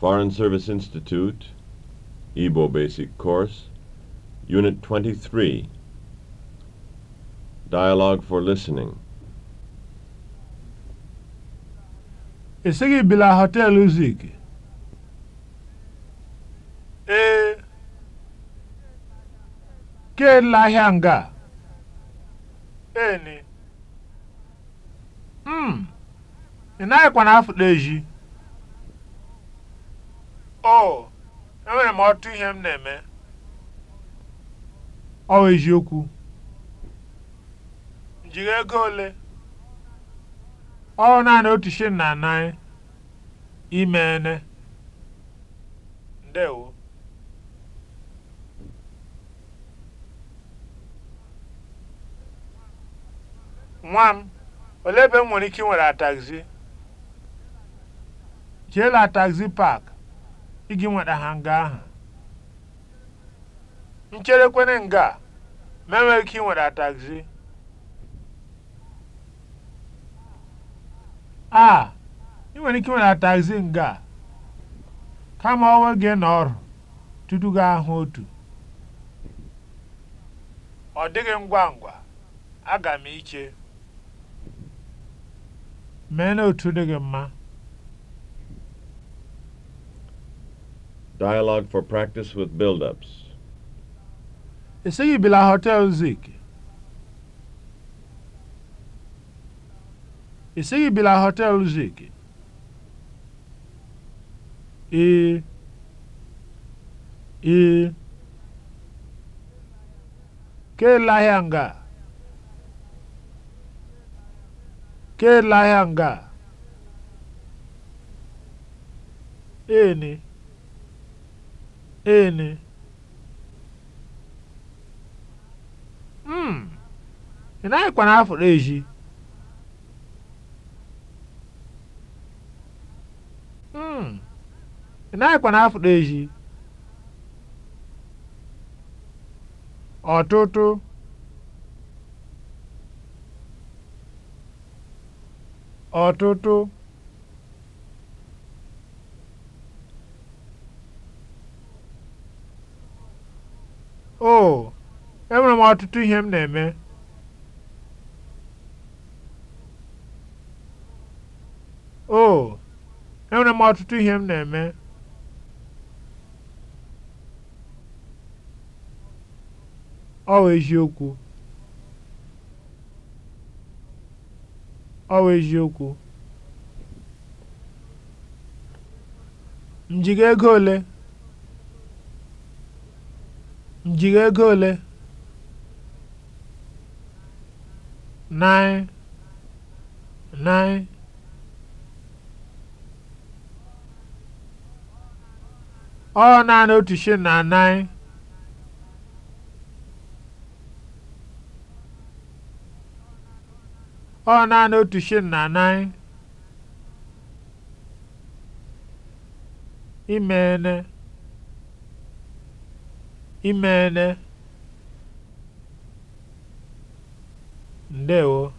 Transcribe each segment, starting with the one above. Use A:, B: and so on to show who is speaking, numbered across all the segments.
A: Foreign Service Institute, Igbo Basic Course, Unit 23, Dialogue for Listening. Ị bila hotel Zik? Ee. Ke nga? Eni. Mm. ina naghịkwa na afụta eji. o enwere m ọtụ ihe m na-eme ọ bụ okwu. jiri ego ole ọ naanị otu shilling na anaghị ime ene ndewo nwa m olee ebe m nwere ike ịnwere taxi jee la taxi park iji nweta ha nga ahụ ncherekwene nga a ma enweghị ike ịnweta taxi a ị nwere ike ịnweta taxi nga a kama onwe gị na ọrụ tutu gị ahụ otu ọ dịghị ngwa ngwa aga m iche mee na otu mma Dialogue for practice with build-ups. Esighị bila Hotel Zik. Esighị bila Hotel Zik. Ee. Ee. Ke la nga. Ke nga. Ee ene mm ị naghịkwa na afọ eji? mm ị naghịkwa na-afụrụ ezi ọtụtụ ọtụtụ oh enwere m ọtụtụ ihe m na-eme oh enwere m ọtụtụ ihe m na-eme ọ bụ eziokwu ọ bụ eziokwu m ego ole M jiri ego ole? ọ naanị otu shilling na nine ọ naanị otu shilling na nine imene imeene ndewo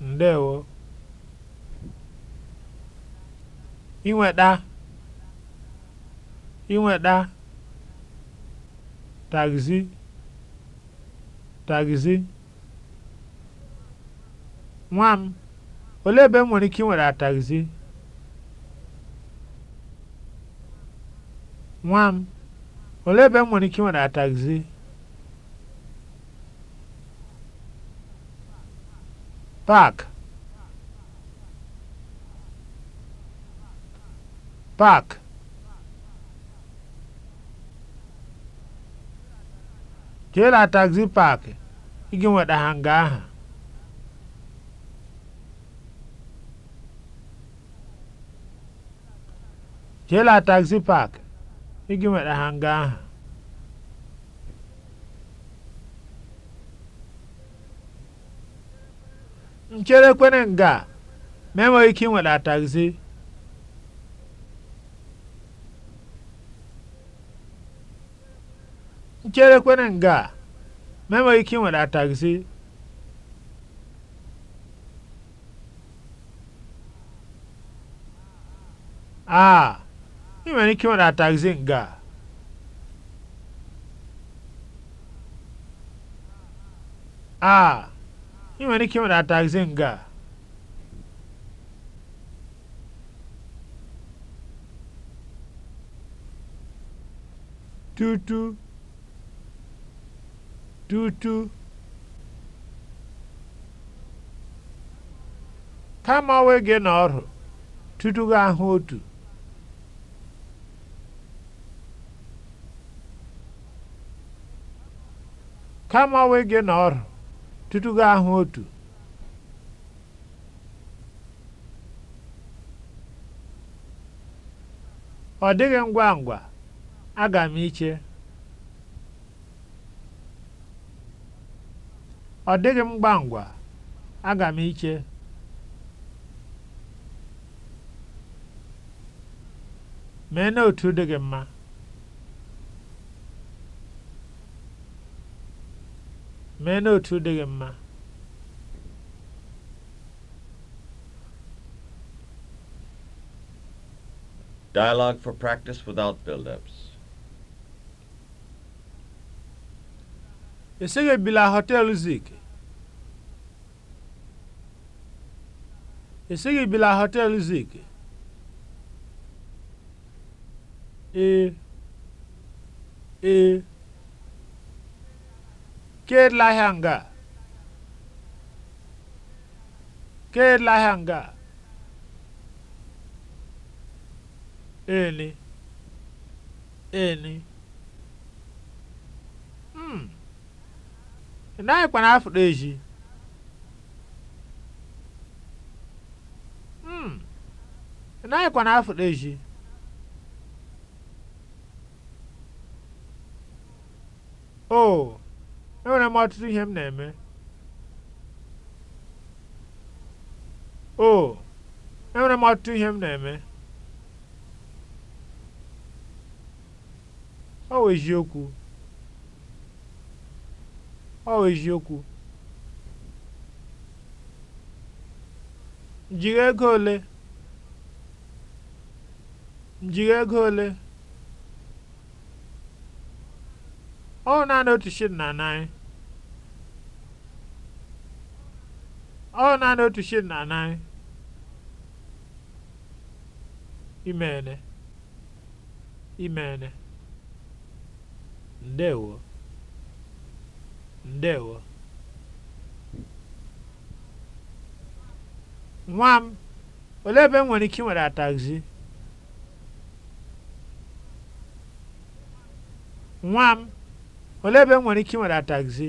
A: ndewo inweta inweta tagzi tagzi nwa m olee ebe m nwere ike inweta tagzi nwa m olee ebe m nwere ike ịnweta tagzi paak paak jee la tagzi paakị ị ga aha jee la tagzi Ego nwere hanga ahụ. nchere kwere nga ma enweghị ike ịnweta taxi nchere kwere nga ma enweghị ike ịnweta taxi a ah. ị nwere ike ịnwụ na taxi nga a a ị nwere ike ịnwụ na nga tutu tutu kama onwe gị n'ọrụ tutu gị ahụ otu kama gị na ọrụ tutu gị ahụ otu ọ dịghị ngwa ngwa aga m iche ọ dịghị m ngwa ngwa aga m iche mee dị gị mma mee n'otu dị gị mma Dialogue for practice without build-ups. esighị ebila họteelụ Zik. esighị ebila họteelụ Zik. ee eh, ee eh, Kedụ ahịa nga? Kedụ ahịa nga? Eni. Eni. Hmm. Ị naghịkwa na eji. Hmm. Ị naghịkwa na-afụrụ eji. Oh. enwere m ọtụtụ ihe m na-eme o oh, enwere m ọtụtụ ihe m na-eme ọ wụ eziokwu ọ wụ eziokwu njiri ego ole njiri ego ole ọ naanị otu shilling na naịra ọ naanị otu shil na anaghị imeene imeene ndewo ndewo nwa m olee ebe m nwere ike nwere taxi nwa m olee ebe m nwere ike nwere taxi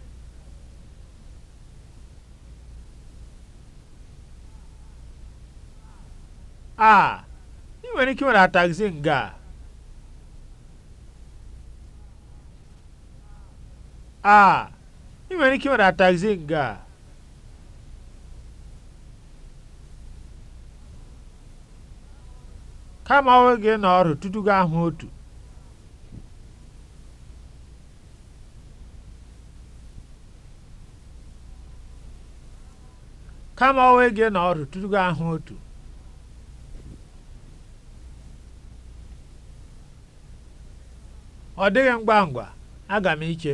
A: a ah, I nwere ike iwere atagzi nga a ah, I nwere ike iwere atagzi nga kama onwe gị n'ọrụ tutu gị ahụ otu kama onwe gị n'ọrụ tutu gị ahụ otu ọ dịghị ngwa ngwa aga m iche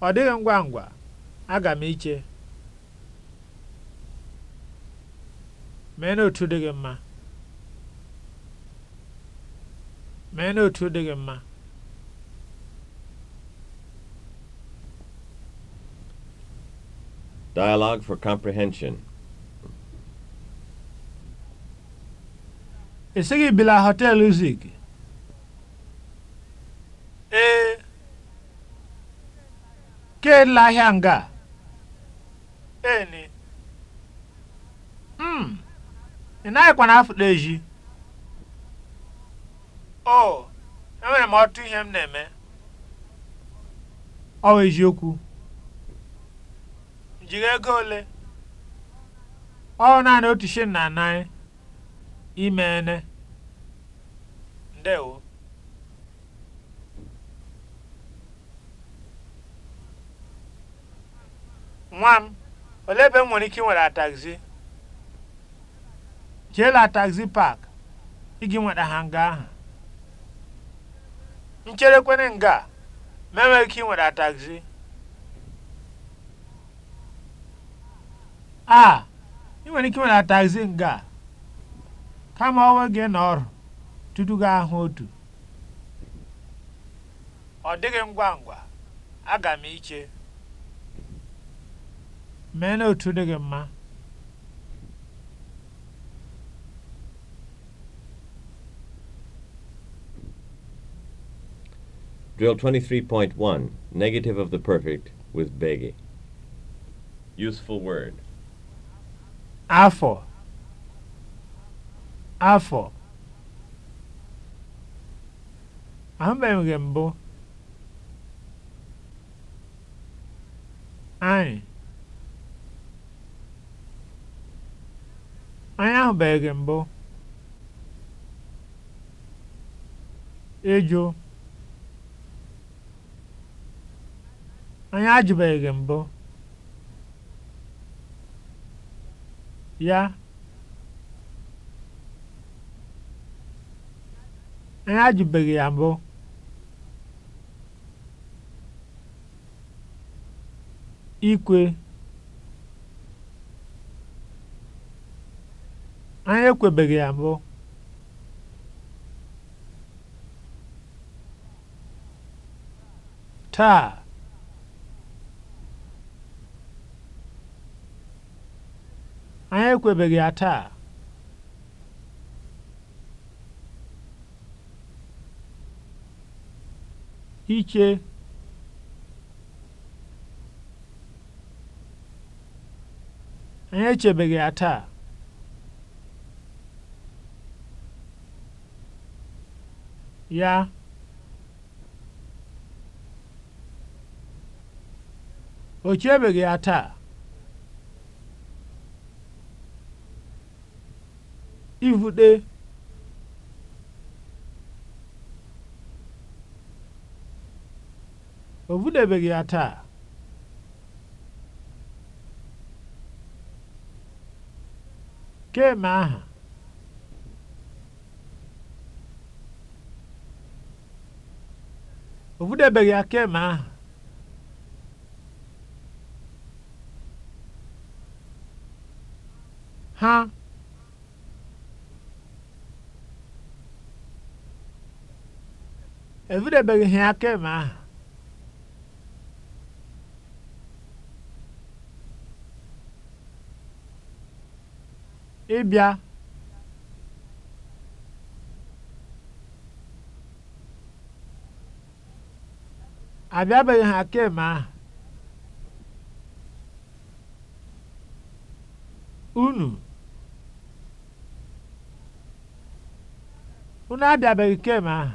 A: ọ dịghị ngwa ngwa aga m iche mee n'otu dị gị mma mee n'otu dị gị mma Dialogue for comprehension. Esighị bila Hotel Zig. Ire erela ahịa nga a. Eni. M. Hmm. Ị naghịkwana afụta ezi. O, enwere m ọtụ ihe m na-eme. Ọ bụ eziokwu. M jiri ego ole? Ọ naanị otu shilling na naịra. Imeene. Ndewo. nwa m olee ebe m nwere ike ịnweta taxi jee la taxi park iji nweta ha nga ahụ ncherekwene nga ma enweghị ike nwere taxi a ị nwere ike ịnweta taxi nga kama onwe gị na ọrụ tutu gị ahụ otu ọ dịghị ngwa ngwa aga m iche Mee n'otu dị mma. Drill 23.1 Negative of the Perfect with Begi. Useful word. afo Afọ. Ahụbeghị m gị mbụ. Anyị. Anyị ahụbeghị mbụ. Ejò. Anyị ajụbeghị mbụ. Ya. Anyị ajụbeghị ya mbụ. Ikwe. Anyị ekwebeghị ya mbụ. Taa. Anyị ekwebeghị ya taa. Iche. Anyị echebeghị ya taa. ya o chebeghị ya taa ivute o vudebeghị ya taa keme aha O budabeghị akeme ahụ. Ha ebudabeghị ahụ. Ịbịa abịabeghị ha kemgbe ahụ unu unu abịabeghị kemgbe ahụ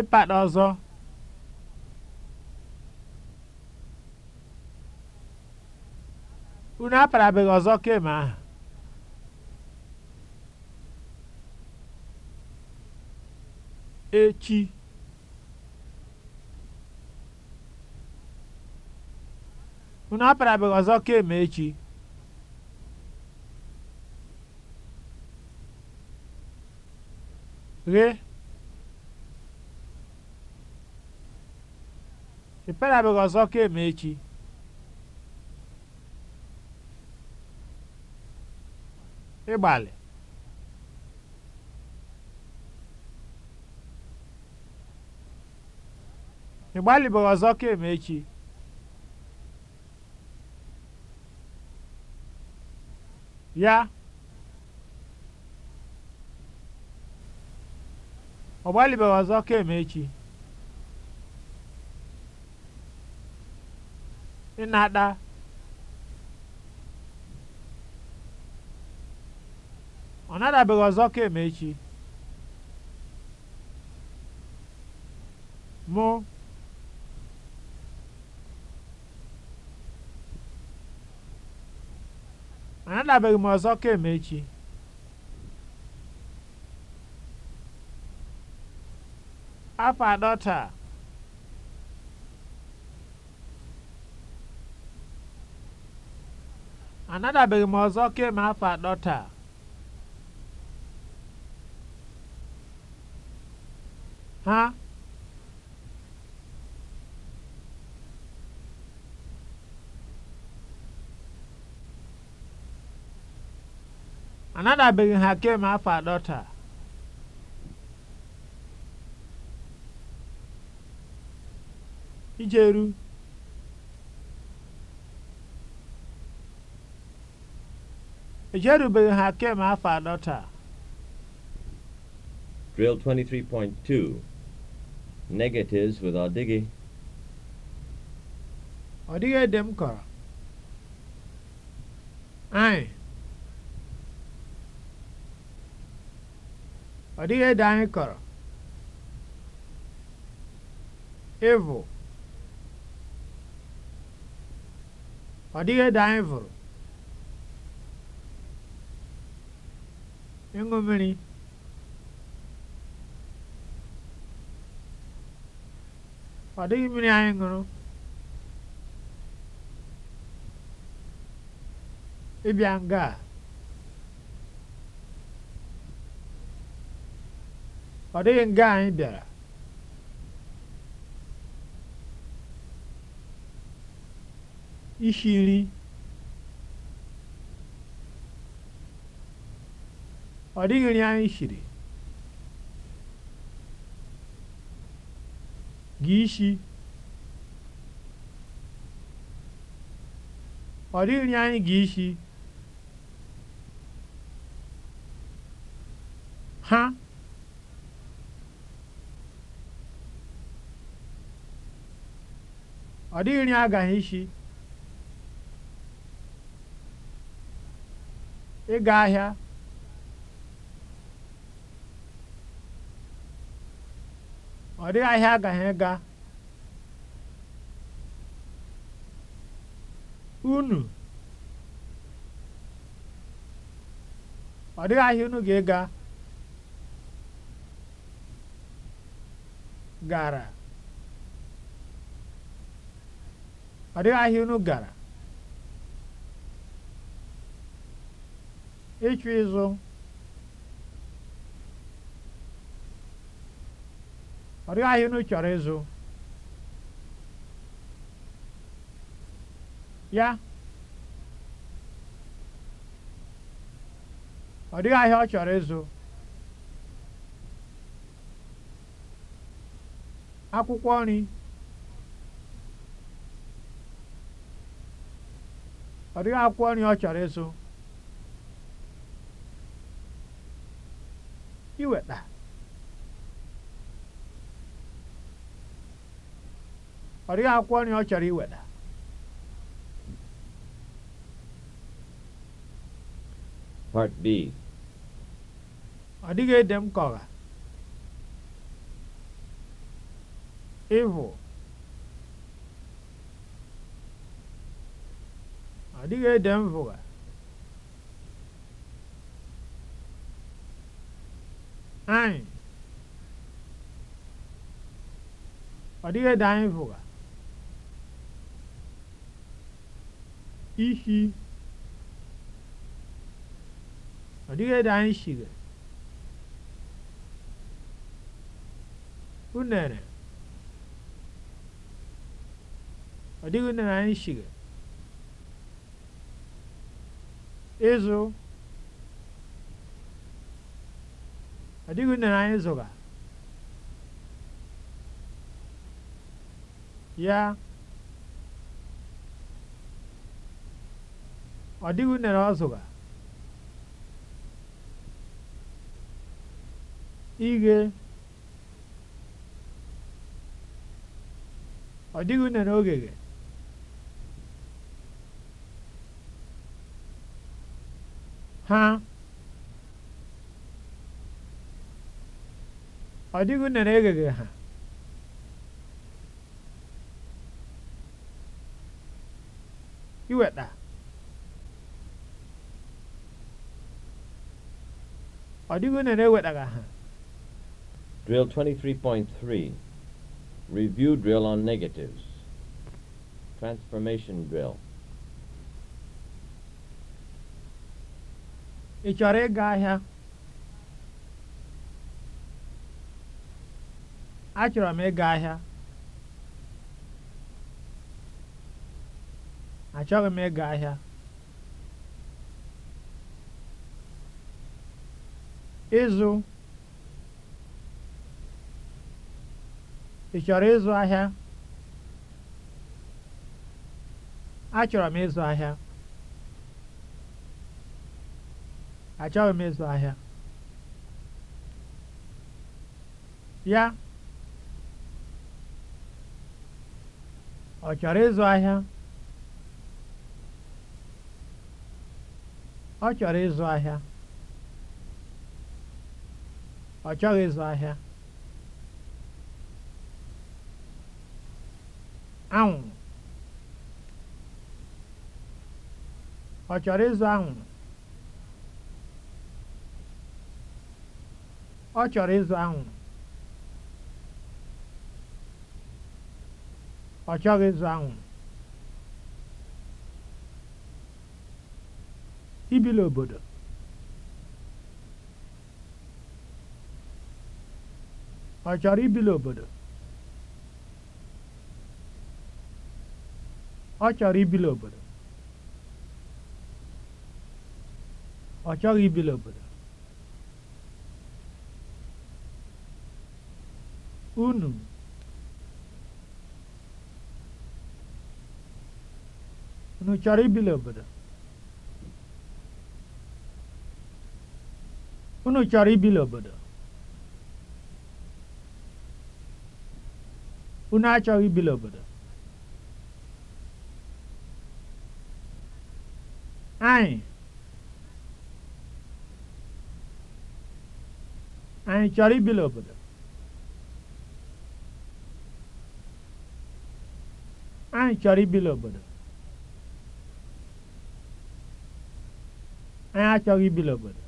A: ịpata ọzọ unu abeghị ọzọ kemgbe ahụ echi unu apịarabeghị ọzọ kemgbe echi ghe ị pịarabeghị ọzọ kemgbe echi ịgbalị Ịgbalị e gbalịbeghị e ọzọ kemgbe echi ya ọ gbalịbeghị ọzọ kemgbe echi ịnata ọ nadabeghị ọzọ kemgbe echi mụ anadabeghị m ọzọ kemgbe echi afọ anọ taa anadabeghị m ọzọ kemgbe afọ anọ taa ha anadabeghị ha kemgbe afọ atọ taa ijeru ejerubeghị ha kemgbe afọ atọ taa Drill 23.2 Negatives with ọdịghị ọdịghị ede m kọrọ ọ dịghị ede anyị kọrọ ịvụ ọ dịghị ede anyị vụrụ ịṅụ mmiri ọ dịghị mmiri anyị ṅụrụ ịbịa nga a ọ dịghị nga anyị bịara isi nri ọ dịghị nri anyị shiri gị ishi ọ dịghị nri anyị gị ishi ha ọ dịghị nri agaghị isi ịga ahịa ọ dịghị ahịa agaghị ịga unu ọ dịghị ahịa unu ga-ịga gara adiga ahịa gara ịchụ ịzụ ọdịghị ahịa unu chọrọ ịzụ ya ọdịghị ahịa ọ chọrọ ịzụ akwụkwọ nri ọ dịghị akwụkwọ nri ọ chọrọ ịzụ. iweta ọ dịghị akwụkwọ nri ọ chọrọ iweta Part B ọ dịghị ede m ka ọha ọ dịghị ede mvụga anyị ọ dịghị ede anyị mvụga ihi ọ dịghị ede anyị shige unere ọ dịghị unere anyị shige ịzụ ọ dịghị unere anyị zụga ya ọ dịghị unere ọ zụga ighe ọ dịghị unere ogege ha ọ dịghị unere egheghị ha iweta ọ dịghị unere ewetaghị ha Drill 23.3 Review drill on negatives. Transformation drill. ị chọrọ ịga ahịa achọrọ m ịga ahịa achọghị m ịga ahịa ịzụ ị chọrọ ịzụ ahịa achọrọ m ịzụ ahịa achọghị m ịzụ ahịa ya ọ chọrọ ịzụ ahịa ọ chọrọ ịzụ ahịa ọ chọghị ịzụ ahịa anwụrụ ọ chọrọ ịzụ anwụ ọ chọrọ ịzụ anwụrụ ọ chọghị ịzụ anwụrụ ibili obodo ọ chọrọ ibi n'obodo ọ chọrọ ibi n'obodo ọ chọghị ibi n'obodo unu unu chọrọ ibili obodo unu chọrọ ibili obodo unu achọghị ibili obodo anyị chọrọ ibili obodo anyị chọrọ ibili obodo anyị achọghị ibili obodo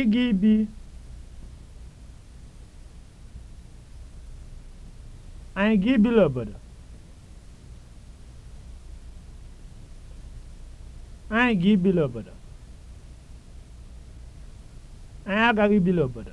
A: ịga ibi anyị ga ibili obodo anyị ga ibili obodo anyị agaghị ibili obodo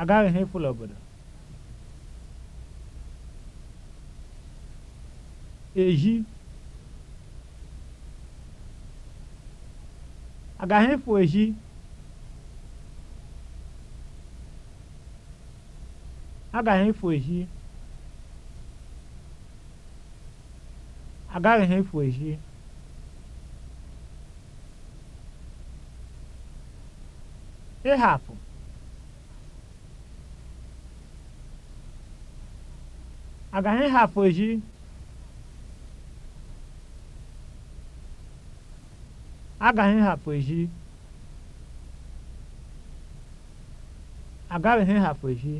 A: agaghi n'efu obodo eji agaghị efu eji agaghị efu eji agaghị efu ehi ịhapụ agaghị ha foji agaghị ha foji agaghị ha foji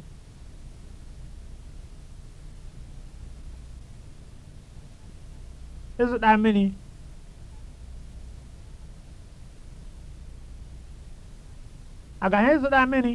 A: ịzụta mmiri agaghị ịzụta mmiri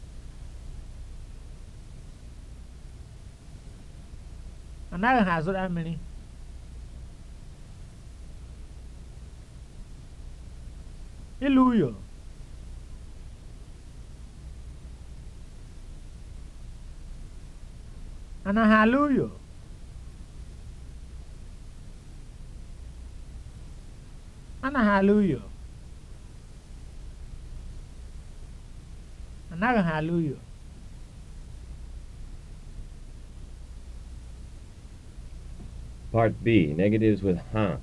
A: anaghị ha azụra mmiri ilu uyo anaghị ala uyo anaghị alụ uyo anaghị ha ala uyo Part B, negatives with huh.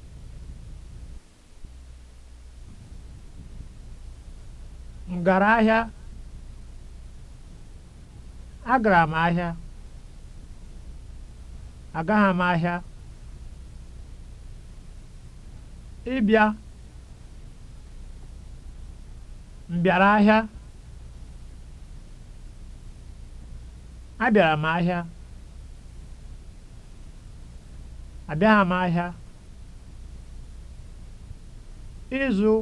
A: M gara ahịa. Agara m ahịa. Agaghị m ahịa. Ịbịa. M bịara ahịa. Abịara m ahịa. abịaghị m ahịa ịzụ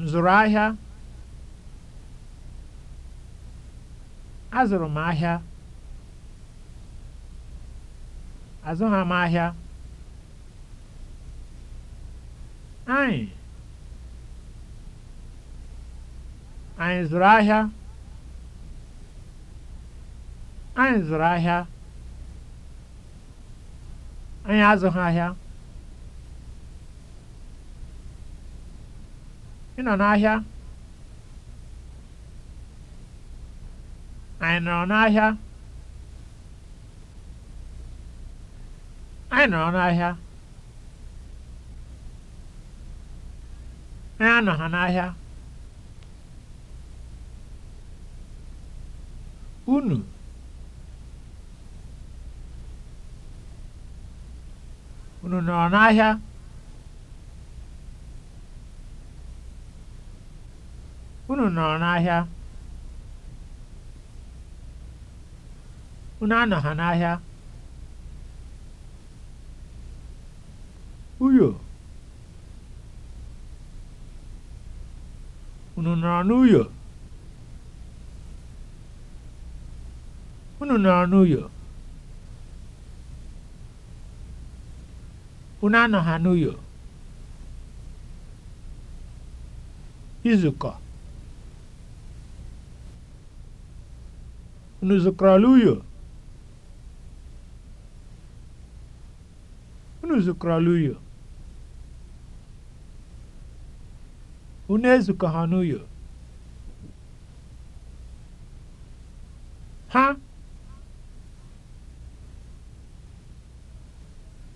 A: nzụrụ ahịa azụrụ m ahịa azụghị m ahịa anyị anyị zụrụ ahịa anyị zụrụ ahịa anyị azụghị ahịa ị nọ n'ahịa anyị nọrọ n'ahịa anyị nọrọ n'ahịa anyị anọghị n'ahịa unu nọ n'ahịa unu nọ n'ahịa unu anọ ha n'ahịa uyo unu nọ n'uyo unu nọrọ n'uyo Unu anọghanụyo? Izukọ. Unu zukọrọla uyo? Unu zukọrọla uyo? Unu Ha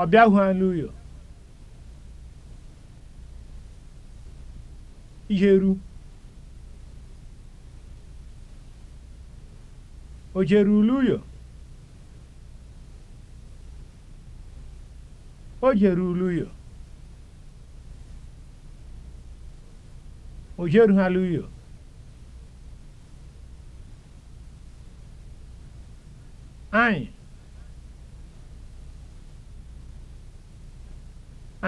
A: ọ bịahụela ụyọ iheru o jere ule ụyọ o jere ule ụyọ o jerughala ụyọ anyị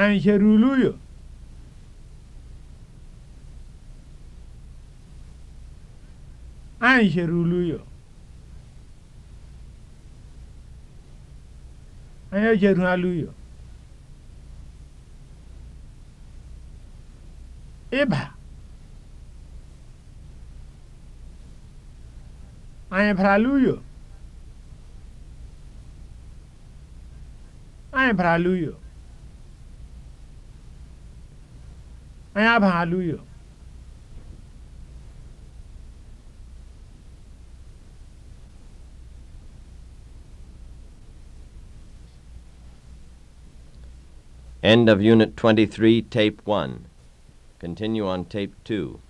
A: Anyị ulu Angelulo. Anyị ejeru alụyo. Ịba. Anyị bara alụyo. Anyị bara alụyo. Anyabahaluyo. End of Unit 23, Tape 1. Continue on Tape 2.